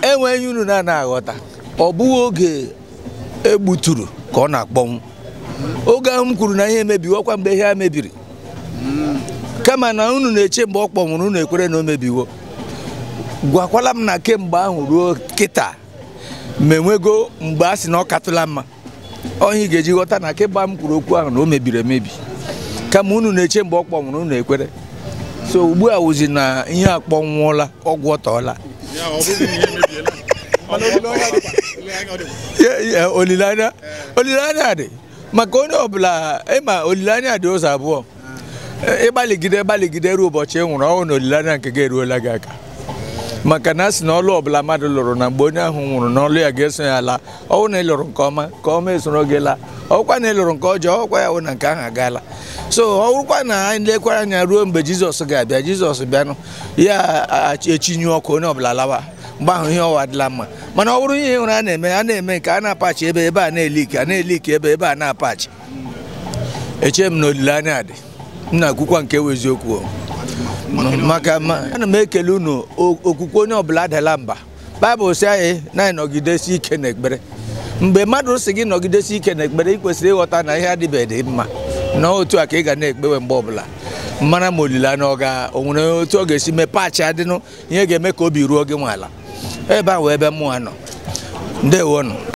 enweghị unu na na aghọta ọ bụghị oge egbuturu ka ọ na-akpọnwụ oge ahụ m kwuru na ihe emebiwo kwa mgbe ihe a mebiri kama na unu na-eche mgbe ọ kpọnwụrụ unu ekwere na o mebiwo gwakwala m na kemgbe ahụ ruo kịta ma enwego mgbe a sị na ọ katụla mma ọhịa ị ga-eji ghọta na kemgbe m kwuru okwu ahụ na o mebiri emebi kama unu na-eche mgbe ọ kpọnwụrụ unu ekwere so ugbu a wụzi na ihe akpọnwụọla ọgwụ ọtọọla olilanya olilanya de maka onye ọbụla ịma olilanya dị ụzọ abụọ ịgbaligide gbaligide ruo ụbọchị ị nwụrụ ọnwụ na olilanya nke gị eruola gị aka maka na a sị na ọlụ ọbụla mmadụ lụrụ na mgbe onye ahụ nwụrụ na ọlụ ya ga-eso ya laa ọwụ na ịlụrụ nke ọma ka ọma esoro gị laa ọkwa na ị lụrụ nke ọjọọ ọkwa ya wụ na nke ahụ agaala so ọ na anyị lekwara anya ruo mgbe jizọs ga-abịa jizọs bịanụ ya echinyu ọkụ onye ọbụla lawa mgbe ahụ ihe ọwa adịla mma mana ọ bụrụ ihe ụra a na-eme a na-eme nke a na-apachi ebe ebe a na ike a na ike ebe ebe a na-apachi eche m na olileanya dị m na-akwụkwa nke ewu eziokwu maka ana m ekele unu okwukwe onye ọbụla adala mba baịbụl si anyị na-anọgidesi ike na ekpere mgbe mmadụ si gị nọgidesi ike na ekpere ị kwesịrị ịghọta na ihe adịbeghị mma na otu a ka ị ga na-ekpewe mgbe ọbụla mara ma olileanya ọ ga onwere otu ọ ga-esi mee paachị adịnụ ihe ga-eme ka obi ruo gị ala ebe a wee ebe mụnwa nọ ndewo nọ